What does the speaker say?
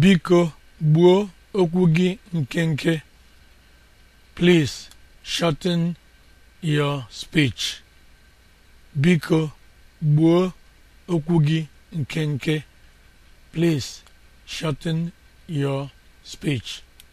biko gbuo okwu gị nke nke shorten your speech biko please shorten your speech